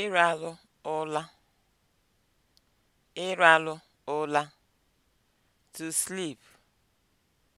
ịralụ ụla ịralụ ụla (to sleep)